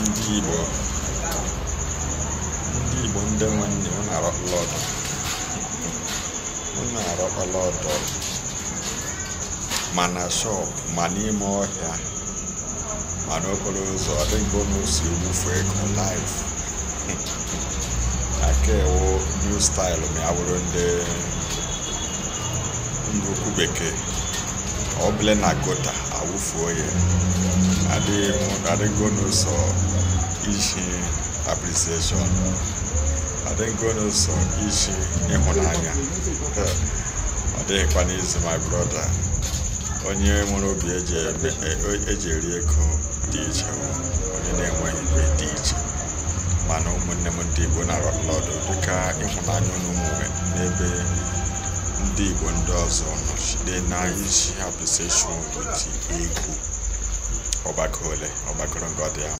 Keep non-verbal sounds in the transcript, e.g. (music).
ndị Igbo ndị Igbo ndị nwanne m na-arọkpala ọdọ m arọkpala ọdọ ma na shọp ma n'ime ọhịa ma n'okporo ụzọ ọdịgo n'osi ewufu ego live (laughs) aka ewu new style ma ya bụrụ ndị ndị okwu bekee ọbụla na gota awụfuo ya adịgo n'ụzọ iji aprisieshọn adịgo n'ụzọ iji ịhụnanya ọ dịghịkwa n'izu my brọda onye nwere obi eji eri ego dị iche onye na-enweghị ibe dị iche mana ụmụnne m ndị igbo na arọ ọdụ dịka ịhụnanya n'ụmụ n'ebe ndị igbo ndị ọzọ nọ then I issue appreciation with Igbo Obakole, Obakoron Godia.